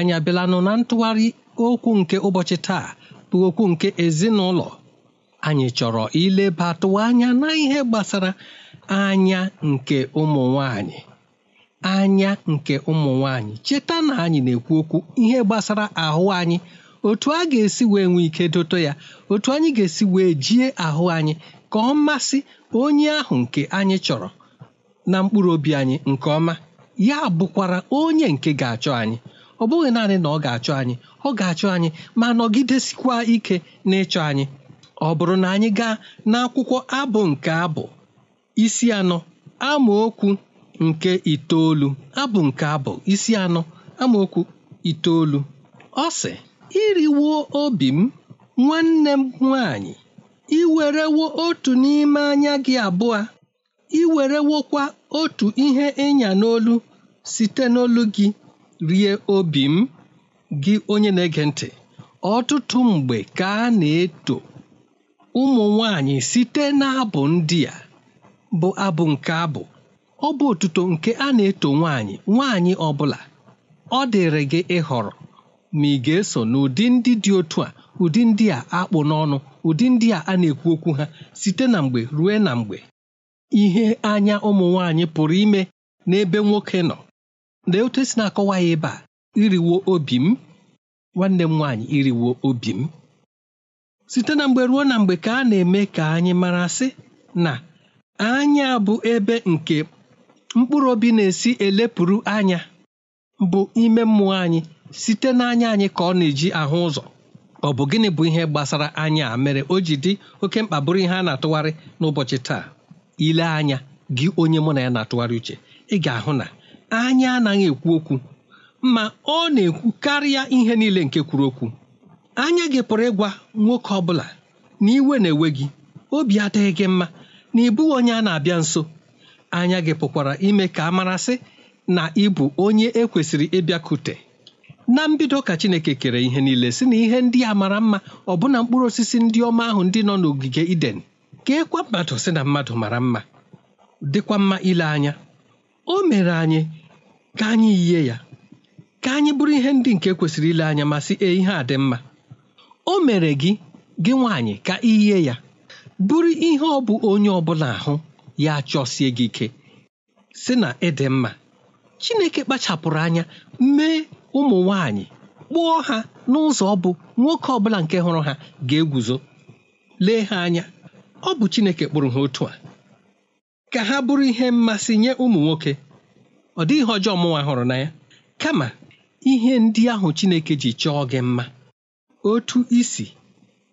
anyị abịalanụ na ntụgharị okwu nke ụbọchị taa bụ okwu nke ezinụlọ anyị chọrọ ilebatụ anya na ihe gbasara anya nke ụmụ nwanyị anya nke ụmụ nwanyị cheta na anyị na-ekwu okwu ihe gbasara ahụ anyị otu a ga-esi wee nwee ike dote ya otu anyị ga-esi wee jie ahụ anyị ka ọ masị onye ahụ nke anyị chọrọ na mkpụrụ obi anyị nke ọma ya bụkwara onye nke ga-achọ anyị ọ bụghị naanị na ọ ga-achọ anyị ọ ga-achọ anyị ma nọgidesikwa ike n'ịchọ anyị ọ bụrụ na anyị gaa n'akwụkwọ abụ nke abụ isi anọ amaokwu nke itoolu abụ nke abụ isi anọ amaokwu itoolu ọ sị iriwo obi m nwanne m nwanyị iwerewo otu n'ime anya gị abụọ iwerewokwa otu ihe ịnya n'olu site n'olu gị rie obi m gị onye na-ege ntị ọtụtụ mgbe ka a na-eto ụmụ nwanyị site n'abụ ndị a bụ abụ nke abụ ọ bụ otuto nke a na-eto nwanyị nwanyị ọ bụla ọ dịrị gị ịhọrọ ma ị ga-eso n'ụdị ndị dị otu a ụdị ndị a akpụ n'ọnụ ụdị ndị a a na-ekwu okwu ha site na mgbe ruo na mgbe ihe anya ụmụ nwanyị pụrụ ime n'ebe nwoke nọ lee otu esi na-akọwa ya ebe a iriwo obi m nwanne m nwaanyị iriwo obi m site na mgbe ruo na mgbe ka a na-eme ka anyị mara sị na anya bụ ebe nke mkpụrụ obi na-esi elepụrụ anya bụ ime mmụọ anyị site n'anya anyị ka ọ na-eji ahụ ụzọ ọ bụ gịnị bụ ihe gbasara anya a mere o ji dị oke mkpa bụrụ ihe a na-atụgharị n'ụbọchị taa ile anya gị onye mụ na ya na-atụgharị uche ị ga-ahụ na anya anaghị ekwu okwu ma ọ na-ekwu karịa ihe niile nke kwuru okwu anya gị pụrụ ịgwa nwoke ọ bụla na iwe na-ewe gị obi adịghị gị mma na ị bụghị onye a na-abịa nso anya gị pụkwara ime ka a marasị na ịbụ onye ekwesịrị ịbịakute na mbido ka Chineke kere ihe niile si na ihe ndị a mara mma ọbụna mkpụrụ osisi ndị ọma ahụ ndị nọ n'ogige Iden ka e mmadụ si na mmadụ mara mma dịkwa mma ile anya o mere anyị ka anyị yie ya ka anyị bụrụ ihe ndị nke kwesịrị ile anya ma sị ihe a dị mma o mere gị gị nwaanyị ka iyie ya bụrụ ihe ọ bụ onye ọbụla ahụ ya chọsie gị ike sị na ịdị mma Chineke kpachapụrụ anya mee ụmụ nwaanyị kpụọ ha n'ụzọ ọ bụ nwoke ọbụla nke hụrụ ha ga-eguzo lee ha anya ọ bụ Chineke kpụrụ ha otu a ka ha bụrụ ihe mmasị nye ụmụ nwoke ọ dịghị ihe ọjọọ mụnwa hụrụ na ya kama ihe ndị ahụ Chineke ji chọọ gị mma otu isi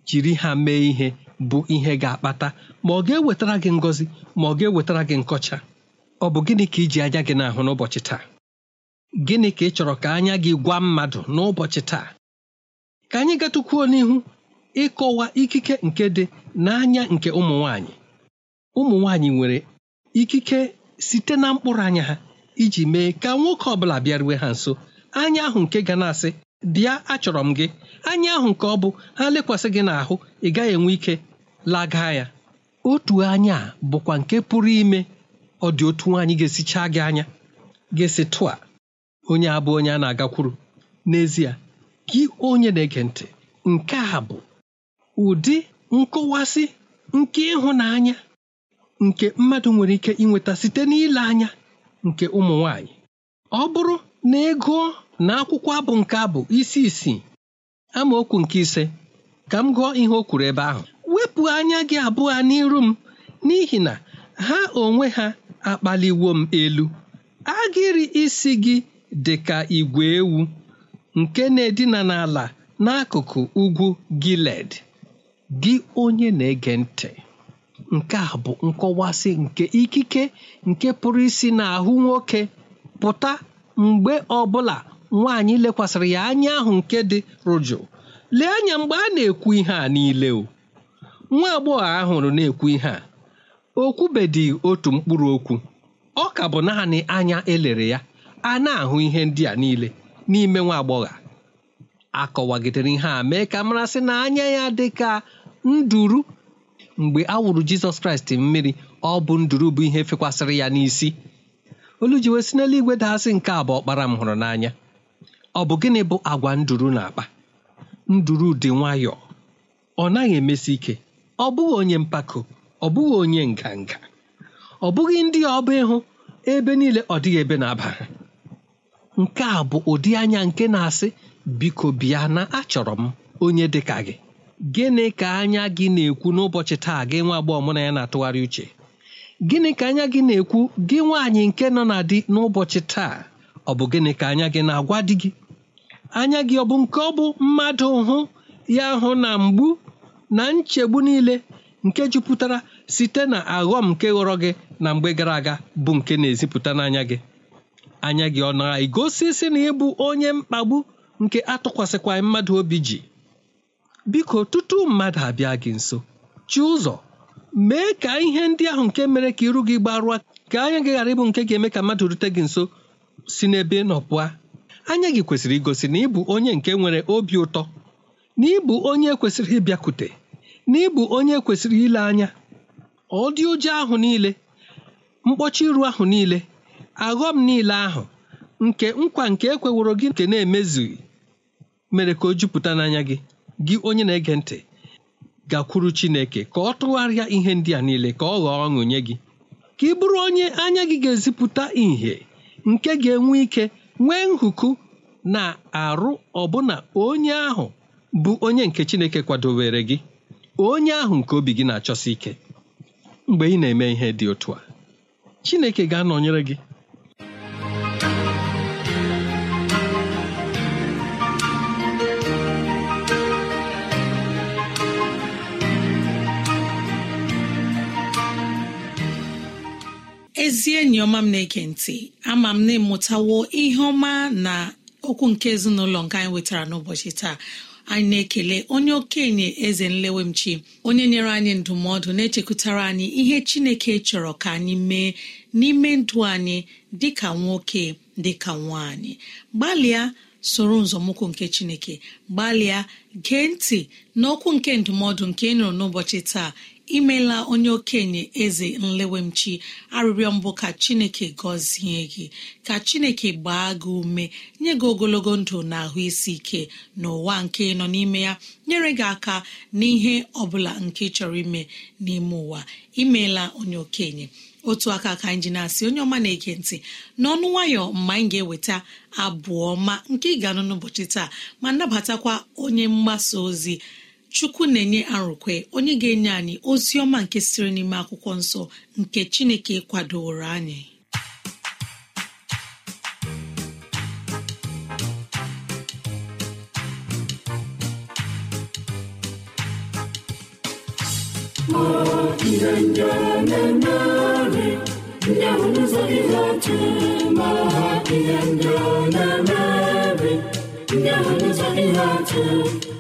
jiri ha mee ihe bụ ihe ga-akpata ma ọ ga-ewetara gị ngọzi ma ọ ga-ewetara gị nkọcha ọ bụ gịnị ka iji anya gị n'ahụ n'ụbọchị taa gịnị ka ị chọrọ ka anya gị gwa mmadụ n'ụbọchị taa ka anyị gatụkwuo n'ihu ịkọwa ikike nke dị n'anya nke ụmụ nwanyị ụmụ nwanyị nwere ikike site na mkpụrụ anya ha iji mee ka nwoke ọbụla bịaruwe ha nso anya ahụ nke ga na-asị bịa achọrọ m gị anya ahụ nke ọ bụ ha lekwasị gị n'ahụ ị gaghị enwe ike laga ya otu anya bụkwa nke pụrụ ime ọ dị otu nwaanyị ga-esichaa gị anya ga-esi tụa onye abụ onye a na-agakwuru n'ezie gị onye na-ege ntị nke a bụ ụdị nkọwasị nke ịhụnanya nke mmadụ nwere ike inweta site n'ile anya nke ụmụ nwanyị ọ bụrụ na ị gụọ na akwụkwọ abụ nke abụ isi isii amaokwu nke ise ka m gụọ ihe o kwuru ebe ahụ wepụ anya gị abụọ n'iru m n'ihi na ha onwe ha akpaliwo m elu agịrị isi gị dị ka igwe ewu nke na-edina n'ala n'akụkụ ugwu Giled gị onye na-ege ntị nke a bụ nkọwasị nke ikike nke pụrụ isi n'ahụ nwoke pụta mgbe ọbụla nwaanyị lekwasịrị ya anya ahụ nke dị rụjụ lee anya mgbe a na-ekwu ihe a niile o nwa agbọghọ nọ na-ekwu ihe a okwubedị otu mkpụrụ okwu ọ ka bụ naanị anya elere ya a na-ahụ ihe ndị a niile n'ime nwa agbọghọ akọwagidere ihe a mee ka marasị na anya ya dị ka nduru mgbe a wụrụ jizọs kraịst mmiri ọ bụ nduru bụ ihe fekwasịrị ya n'isi olu ji wee si n'eluigwe daasị nke a bụ ọkpara m hụrụ n'anya ọ bụ gịnị bụ agwa nduru na-akpa nduru dị nwayọọ ọ naghị emesi ike ọ bụghị onye mpako ọ bụghị onye nganga ọ bụghị ndị ọba ịhụ ebe niile ọ dịghị ebe na-aba nke a bụ ụdị anya nke na-asị biko bịa na achọrọ m onye dị ka gị gịnị ka anya gị na-ekwu n'ụbọchị taa gị nwa agbọghọ mụ na ya na-atụgharị uche gịnị ka anya gị na-ekwu gị nwaanyị nke nọ na di n'ụbọchị taa ọ bụ gịnị ka anya gị na-agwa di gị anya gị ọ bụ nke ọ bụ mmadụ hụ ya hụ na mgbu na nchegbu niile nke jupụtara site na aghọm nke ghọrọ gị na mgbe gara aga bụ nke na-ezipụta n'anya gị anya gị ọ na-egosi sị na ịbụ onye mkpagbu nke atụkwasịkwaghị mmadụ obi ji biko tutu mmadụ abịa gị nso chi ụzọ mee ka ihe ndị ahụ nke mere ka iru gị gbarụa ka anya gị ghara ịbụ nke ga-eme ka mmadụ rute gị nso si n'ebe ị anya gị kwesịrị igosi na ịbụ onye nke nwere obi ụtọ na ịbụ onye kwesịrị ịbịakwute na ịbụ onye kwesịrị ile anya ọ dị ụjọ ahụ niile mkpọchi iru ahụ niile aghọm niile ahụ nke nkwa nke ekweworo gị nke na-emezughị mere ka o jupụta n'anya gị gị onye na-ege ntị gakwuru Chineke ka ọ tụgharịa ihe ndị a niile ka ọ ghọọ ọṅụ nye gị ka ị bụrụ onye anya gị ga-ezipụta ìhè nke ga-enwe ike nwee nhụkụ na arụ ọbụna onye ahụ bụ onye nke Chineke kwadowere gị onye ahụ nke obi gị na-achọsi ike mgbe ị na-eme ihe dị otu a Chineke ga-anọnyere gị ezi enyi ọma m na-ege ntị ama m na-emụtawo ihe ọma na okwu nke ezinụlọ nke anyị wetara n'ụbọchị taa anyị na-ekele onye okenye eze nlewemchi onye nyere anyị ndụmọdụ na-echekwutara anyị ihe chineke chọrọ ka anyị mee n'ime ndụ anyị dịka nwoke dịka nwaanyị gbalịa soro nzọmụkwụ nke chineke gbalịa gee ntị n'okwu nke ndụmọdụ nke ị nụrụ n'ụbọchị taa imela onye okenye eze nlewemchi arịrịọ mbụ ka chineke gọzie gị ka chineke gbaa gị ume nye gị ogologo ndụ na ahụ isi ike n'ụwa nke nọ n'ime ya nyere gị aka n'ihe ọbụla nke chọrọ ime n'ime ụwa imeela onye okenye otu aka ka anyị ji na-asị onye ọma na-ege ntị n'ọnụ nwayọ mgbe anyị ga-eweta abụ ọma nke ị ga-anụ n'ụbọchị taa ma nabatakwa onye mgbasa ozi chukwu na-enye arụkwe onye ga-enye anyị ozi ọma nke siri n'ime akwụkwọ nsọ nke chineke kwadoro anyị ndị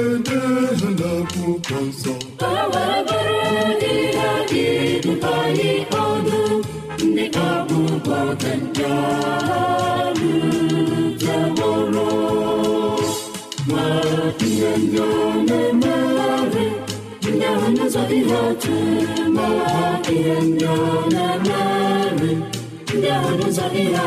ewerederela akwụkwọ nsọ ewereberedịradịdụtayị ọdụ ndị ọgwụgwọ dị ọrụ jebụrụ ma ihe ndị ọ na-emegharị ndị ahụ n'ụzọ ihe ma ihe ndị ọ na ndị ahụ n'ụzọ ihe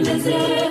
lezie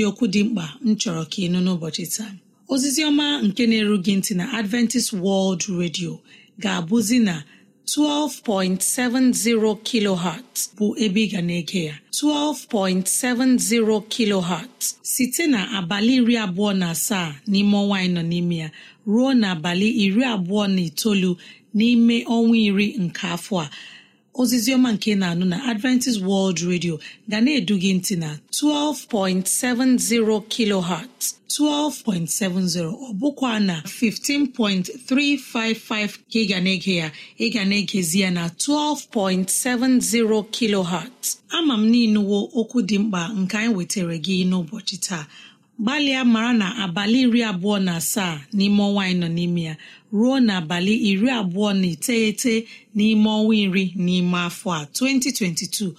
dị okwu dị mkpa m chọrọ ka ịnụ n'ụbọchị taa ozizi ọma nke na-eru ntị na adventist world radio ga-abụzi na 12.70 kilohertz bụ ebe ị ga na-ege ya 12.70 kilohertz site na abalị iri abụọ na asaa n'ime ọnwa anyị nọ n'ime ya ruo na abalị iri abụọ na itoolu n'ime ọnwa iri nke afọ a ozizioma nke na-anụ na adventist world radio ga na-edu gị ntị na 12.70 kilohertz 12.70 ọ bụkwa na 15.355 ka ị ga na-ege ya ị ga na-egezi ya na 12.70 kilohertz ama m n'inuwo okwu dị mkpa nke anyị wetara gị n'ụbọchị taa gbalịa maara na abalị iri abụọ na asaa n'ime ọnwa anyị nọ n'ime ya ruo n'abalị iri abụọ na iteghete n'ime ọnwa iri n'ime afọ a 2022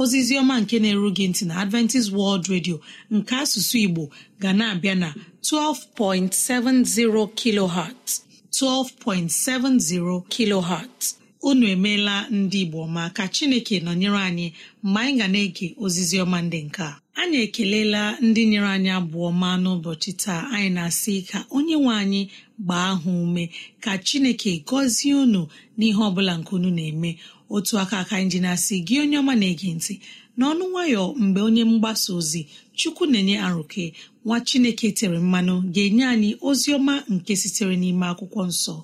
ozizi ọma nke na-eru ntị na Adventist World Radio nke asụsụ Igbo ga na-abịa na 12.70 kilohertz 12.70 kilohertz unu emeela ndị Igbo ma ka Chineke nọnyere anyị mgbe anyị ga na-ege ozizi ndị nke a anyị ekelela ndị nyere anyị abụọ ma n'ụbọchị taa anyị na-asị ka onye nwe anyị gbaa ahụ ume ka chineke gọzie unu n'ihe ọbụla nke unu na-eme otu aka aka anyị ji na-asị gị onye ọma na-ege ntị n'ọnụ nwayọ mgbe onye mgbasa ozi chukwu na-enye arụke nwa chineke tere mmanụ ga-enye anyị ozi ọma nke sitere n'ime akwụkwọ nsọ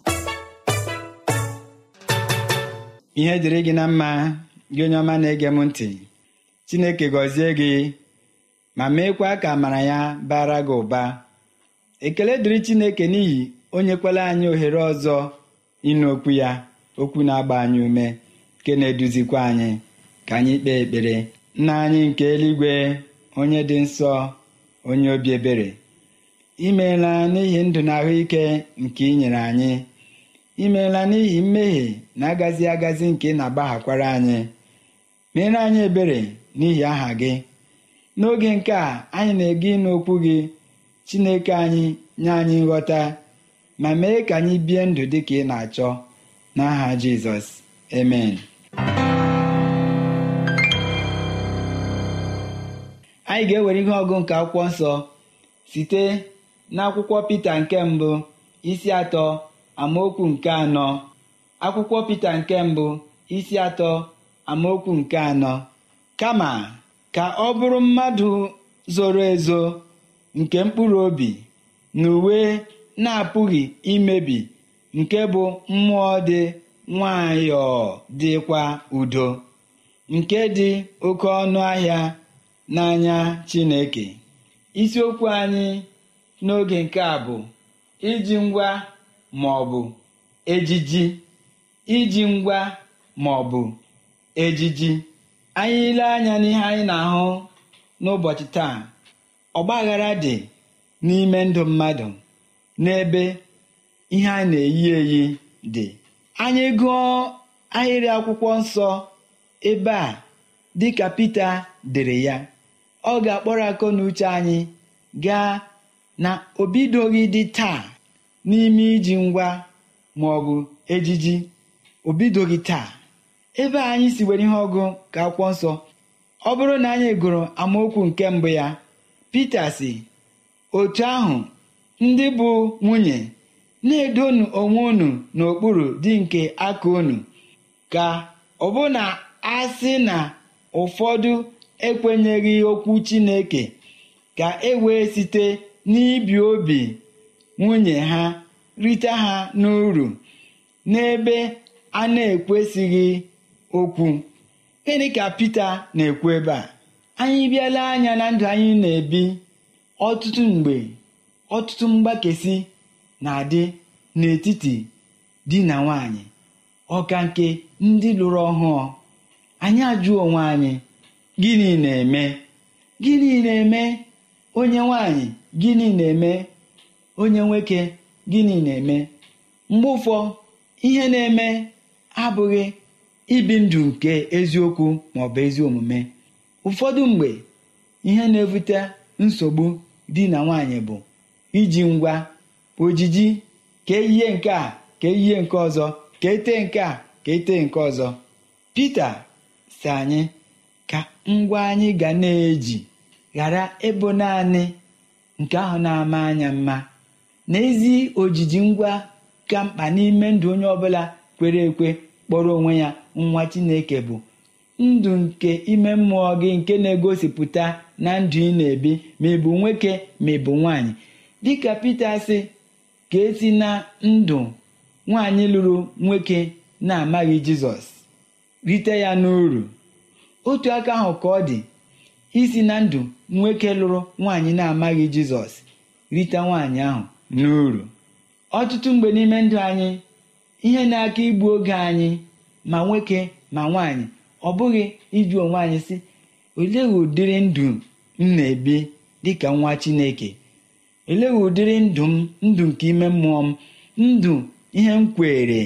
ihe dịrị gị na mma gị onye ọma na-ege m ntị chineke gọzie gị ma meekwa ka amara ya bara gị ụba ekele dịrị Chineke n'ihi onye nyekwala anyị ohere ọzọ ịnụ okwu ya okwu na-agba anyị ume nke na-eduzikwa anyị ka anyị kpee ekpere nna anyị nke eluigwe onye dị nsọ onye obi ebere imeela n'ihi ndụ na ahụike nke ị nyere anyị imeela n'ihi mmehie na-agazi agazi nke ị na-agbaghakwara anyị meere anyị ebere n'ihi aha gị n'oge nke a anyị na-ege ịnụ okwu gị chineke anyị nye anyị nghọta ma mee ka anyị bie ndụ dị ka ị na-achọ n'aha jizọs amen anyị ga-ewere ihe ọgụ nke akwụkwọ nsọ site n'akwụkwọ pita nke mbụ isi atọ amaokwu nke anọ akwụkwọ pita nke mbụ isi atọ amaokwu nke anọ kama ka ọ bụrụ mmadụ zoro ezo nke mkpụrụ obi na uwe na-apụghị imebi nke bụ mmụọ dị nwayọọ dịkwa udo nke dị oke ọnụ ahịa n'anya Chineke isiokwu anyị n'oge nke a bụ iji ngwa ma ọ bụ ejiji iji ngwa ma ọ bụ ejiji anyị ile anya n'ihe anyị na-ahụ n'ụbọchị taa ọgbaghara dị n'ime ndụ mmadụ n'ebe ihe a na-eyi eyi dị anyị gụọ ahịrị akwụkwọ nsọ ebe a dịka Pita dere ya ọ ga-akpọrọ akọ na uche anyị gaa na obidoghị dị taa n'ime iji ngwa ma ọgụ ejiji obidoghị taa ebe anyị si were ihe ọgụ ka akwụkwọ nsọ ọ bụrụ na anyị gụrụ amaokwu nke mbụ ya Pita si otu ahụ ndị bụ nwunye na-edonu onwe unu n'okpuru dị nke aka unu ka ọ bụ na a sị na ụfọdụ ekwenyeghị okwu Chineke ka e wee site n'ibi obi nwunye ha rite ha n'uru n'ebe a na-ekwesịghị okwu gịnị ka Pita na-ekwu ebe a anyị bịala anya na ndụ anyị na-ebi ọtụtụ mgbe ọtụtụ mgbakesi na-adị n'etiti di na nwanyị ọka nke ndị lụrụ ọhụụ anyị ajụọ onwe anyị gịnị na-eme gịnị na-eme onye nwanyị gịnị na-eme onye nwoke gịnị na-eme mgbe ụfọ ihe na-eme abụghị ibi ndụ nke eziokwu ma maọbụ ezi omume ụfọdụ mgbe ihe na-ebute nsogbu di na nwaanyị bụ iji ngwa ojiji ka ihe nke a ka eyie nke ọzọ ka ete nke a ka ete nke ọzọ Pita si anyị ka ngwa anyị ga na-eji ghara ịbụ naanị nke ahụ na-ama anya mma n'ezi ojiji ngwa ka mkpa n'ime ndụ onye ọbụla kwere ekwe kpọrọ onwe ya nwa chineke bụ ndụ nke ime mmụọ gị nke na-egosipụta na ndụ ị na-ebi ma ị bụ nwoke ma ị bụ nwaanyị dịka Pita sị ka esi na ndụ nwaanyị lụrụ nwoke na-amaghị Jizọs rite ya n'uru otu aka ahụ ka ọ dị isi na ndụ nwoke lụrụ nwaanyị na-amaghị Jizọs rite nwaanyị ahụ n'uru ọtụtụ mgbe n'ime ndụ anyị ihe na-aka igbu oge anyị ma nwoke ma nwaanyị ọ bụghị ịjụ onwe anyị sị olee ụdịrị ndụ m na-ebi dịka nwa chineke olee ụdịrị ndụ m ndụ nke ime mmụọ m ndụ ihe m kwere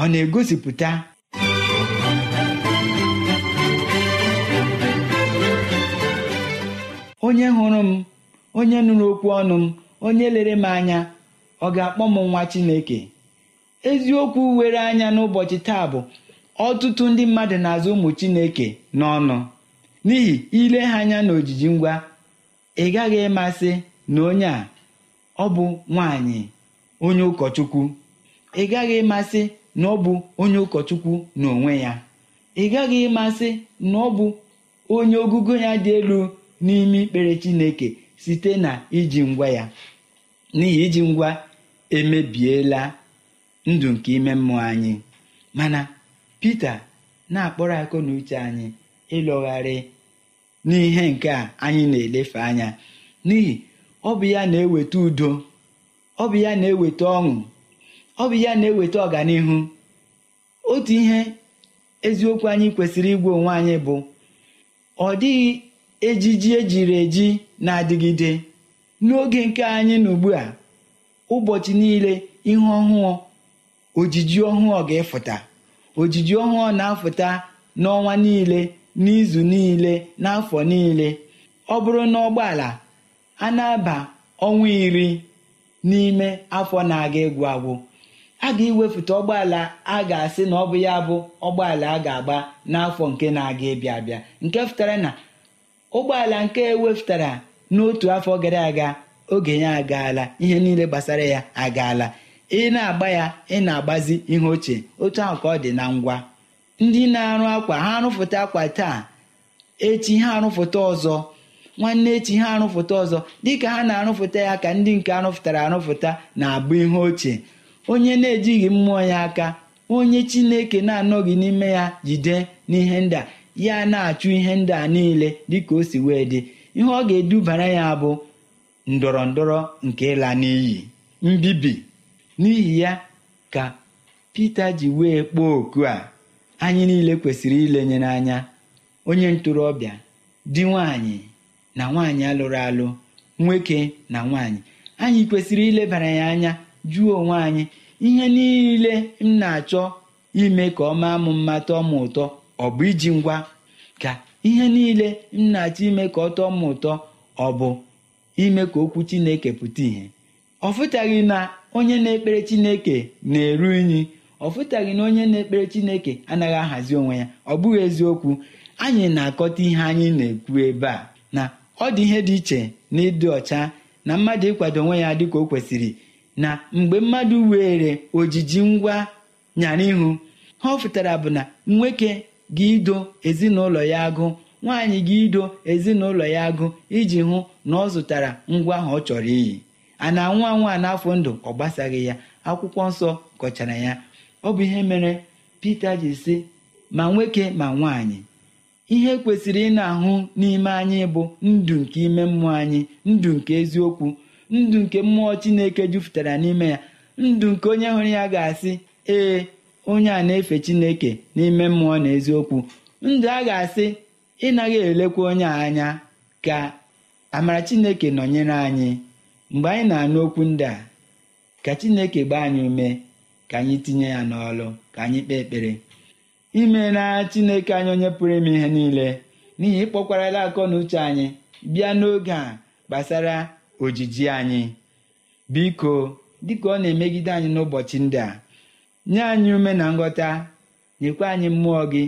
ọ na-egosipụta onye hụrụ m onye nụrụ okwu ọnụ m onye lere m anya ọ ga-akpọ m nwa chineke eziokwu were anya n'ụbọchị taa bụ ọtụtụ ndị mmadụ na-azụ ụmụ chineke n'ọnụ n'ihi ile ha anya na ojiji ngwa ị gaghị ịmasị na onye a ọ bụ nwanyị onye ụkọchukwu ị gaghị ịmasị na ọ bụ onye ụkọchukwu n'onwe ya ị gaghị ịmasị na ọ bụ onye ogugo ya dị elu n'ime ikpere chineke site na iji ngwa ya n'ihi iji ngwa emebiela ndụ nke ime mmụọ anyị mana Pita na-akpọrọ akụ na uche anyị ịlọgharị n'ihe nke a anyị na-elefe anya n'ihi ọ bụ ya na-eweta udo ọ bụ ya na-eweta ọṅụ ọ bụ ya na-eweta ọganihu otu ihe eziokwu anyị kwesịrị igwe onwe anyị bụ ọ dịghị ejiji ejiri eji na-adịgide n'oge nke anyị na ugbu a ụbọchị niile ihe ọhụụ ojiji ọhụụ ga-efụta ojiji ọhụụ na-afụta n'ọnwa niile n'izu niile n'afọ niile ọ bụrụ na ụgbọala a na-aba ọnwa iri n'ime afọ na-aga egwu agwụ a ga-ewepụta ụgbọala a ga-asị na ọ bụ ya bụ ụgbọala a ga-agba n'afọ nke na-aga ịbịa abịa nke fụtara na ụgbọala nke ewepụtara n'otu afọ gara aga oge ya agaala ihe niile gbasara ya agaala ị na-agba ya ị na-agbazi ihe ochie otu ahụ ka ọ dị na ngwa ndị na-arụ akwa ha arụfụta akwa taa echi ha arụfụta ọzọ nwanne echi ha arụfụta ọzọ dịka ha na-arụfụta ya ka ndị nke arụfụtara arụfụta na-abụ ihe ochie onye na-ejighị mmụọ ya aka onye chineke na-anọghị n'ime ya jide n'ihe ndị a ya na-achụ ihe ndị a niile dịka o si wee dị ihe ọ ga-edubara ya bụ ndọrọ ndọrọ nke ịla n'iyi mbibi n'ihi ya ka pete ji wee kpọọ oku a anyị niile kwesịrị ilenye n'anya onye ntorobịa di nwanyị na nwaanyị alụrụ alụ nwoke na nwanyị anyị kwesịrị ilebara ya anya jụọ onwe anyị ihe niile m na-achọ ime ka ọ maa m mma tọọ m ụtọ ọ bụ iji ngwa ka ihe niile m na-achọ ime ka ọ tọọ m ụtọ ọ bụ ime ka okwu Chineke pụta ìhè ọ fụtaghị na onye na-ekpere chineke na-eru unyi ọ fụtaghị na onye na-ekpere chineke anaghị ahazi onwe ya ọ bụghị eziokwu anyị na-akọta ihe anyị na-ekwu ebe a na ọ dị ihe dị iche na ịdị ọcha na mmadụ ịkwado onwe ya dịka o kwesịrị na mgbe mmadụ were ojiji ngwa nyara ihu ha ọ fụtara bụ na nwoke gị ido ezinụlọ ya agụ nwaanyị gị ido ezinụlọ ya agụ iji hụ na ọ zụtara ngwa ahụ ọ chọrọ iyi a na-anwụ anwụ a n'afọ ndụ ọ gbasaghị ya akwụkwọ nsọ kọchara ya ọ bụ ihe mere Pita ji sị ma nwoke ma nwaanyị ihe kwesịrị ị na-ahụ n'ime anyị bụ ndụ nke ime mmụọ anyị ndụ nke eziokwu ndụ nke mmụọ Chineke jupụtara n'ime ya ndụ nke onye hụrụ ya ga-asị ee onye a na-efe Chineke n'ime mmụọ na eziokwu ndụ a ga-asị ịnaghị elekwa onye anya ka amara Chineke nọnyere anyị mgbe anyị na-anụ okwu ndị a ka chineke gbaa anyị ume ka anyị tinye ya n'ọlụ ka anyị kpee ekpere imeela chineke anyị onye pụrụ ime ihe niile n'ihi ịkpọkwarala akọ na uche anyị bịa n'oge a gbasara ojiji anyị biko dịka ọ na-emegide anyị n'ụbọchị ndị a nye anyị ume na nghọta nyekwa anyị mmụọ gị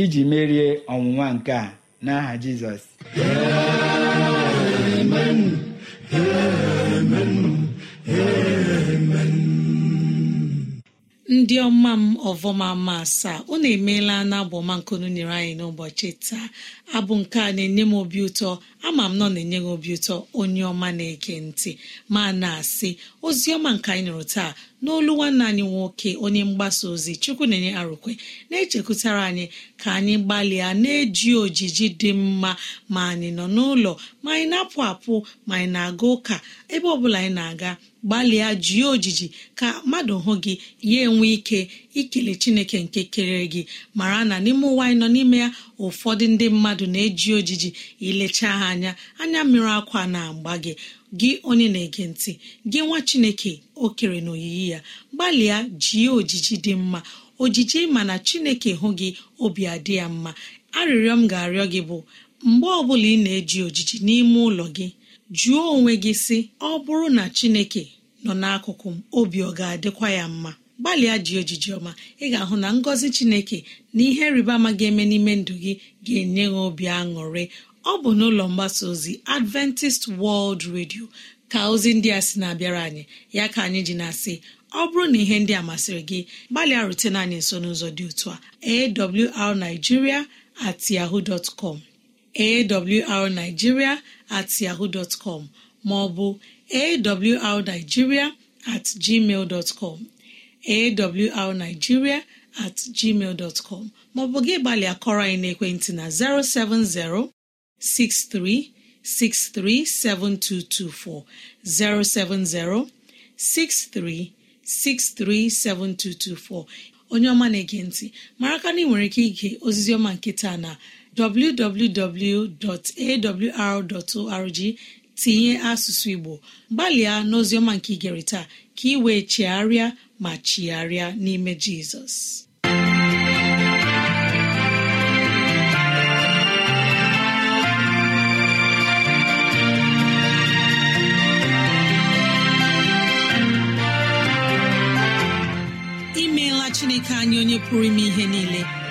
iji merie ọnwụnwa nke a n'aha Jizọs ndị ọma m ọvọma ma asaa unu emeela na abụ ọma nkunu nyere anyị n'ụbọchị taa abụ nke a na-enye m obi ụtọ ama m nọ na-enye gị obi ụtọ onye ọma na eke ntị ma na-asị ozi ọma nke anyị nụrụ taa n'olu nwanne anyị nwoke onye mgbasa ozi chukwu na-enye arụkwe na-echekwutara anyị ka anyị gbalịa na-eji ojiji dị mma ma anyị nọ n'ụlọ ma anyị na-apụ apụ ma anyị na-aga ụka ebe ọ bụla anyị na-aga gbalịa jie ojiji ka mmadụ hụ gị ya enwe ike ikele chineke nke kere gị mara na n'ime ụwa anyị nọ n'ime ya ụfọdụ ndị mmadụ na-eji ojiji ilecha ha anya anya mmiri akwa na-agba gị gị onye na-ege ntị gị nwa chineke o kere na oyiyi ya gbalịa jie ojiji dị mma ojiji mana chineke hụ gị obi adị ya mma arịrịọ m ga-arịọ gị bụ mgbe ọbụla ị na-eji ojiji n'ime ụlọ gị jụọ onwe gị sị ọ bụrụ na chineke nọ n'akụkụ m obi ọ ga-adịkwa ya mma gbalịa ji ojiji ọma ị ga-ahụ na ngọzi chineke na ihe rịba ama ga-eme n'ime ndụ gị ga-enye gị obi aṅụrị ọ bụ n'ụlọ mgbasa ozi Adventist World Radio ka ozi ndị a sị na-abịara anyị ya ka anyị ji na-asị ọ bụrụ na ihe ndị a masịrị gị gbalịa rutena anyị nso n'ụzọ dị otu a arigiria at yahoo dot com at yahoo dot com ma ọ at gmail dot com awrnigeria at gmail dot com maọbụ gị gbalịa kọrọ anyị n'ekwentị na 070 6363 7224 070 6363 7224 onye ọma na-ege ntị mara ka na ị nwere ike ige ozizi ọma nke taa na www.awr.org tinye asụsụ igbo gbalịa n'oziọma nke igere taa ka ị wee chigharịa ma chigharịa n'ime jizọs imeela chineke anyị onye pụrụ ime ihe niile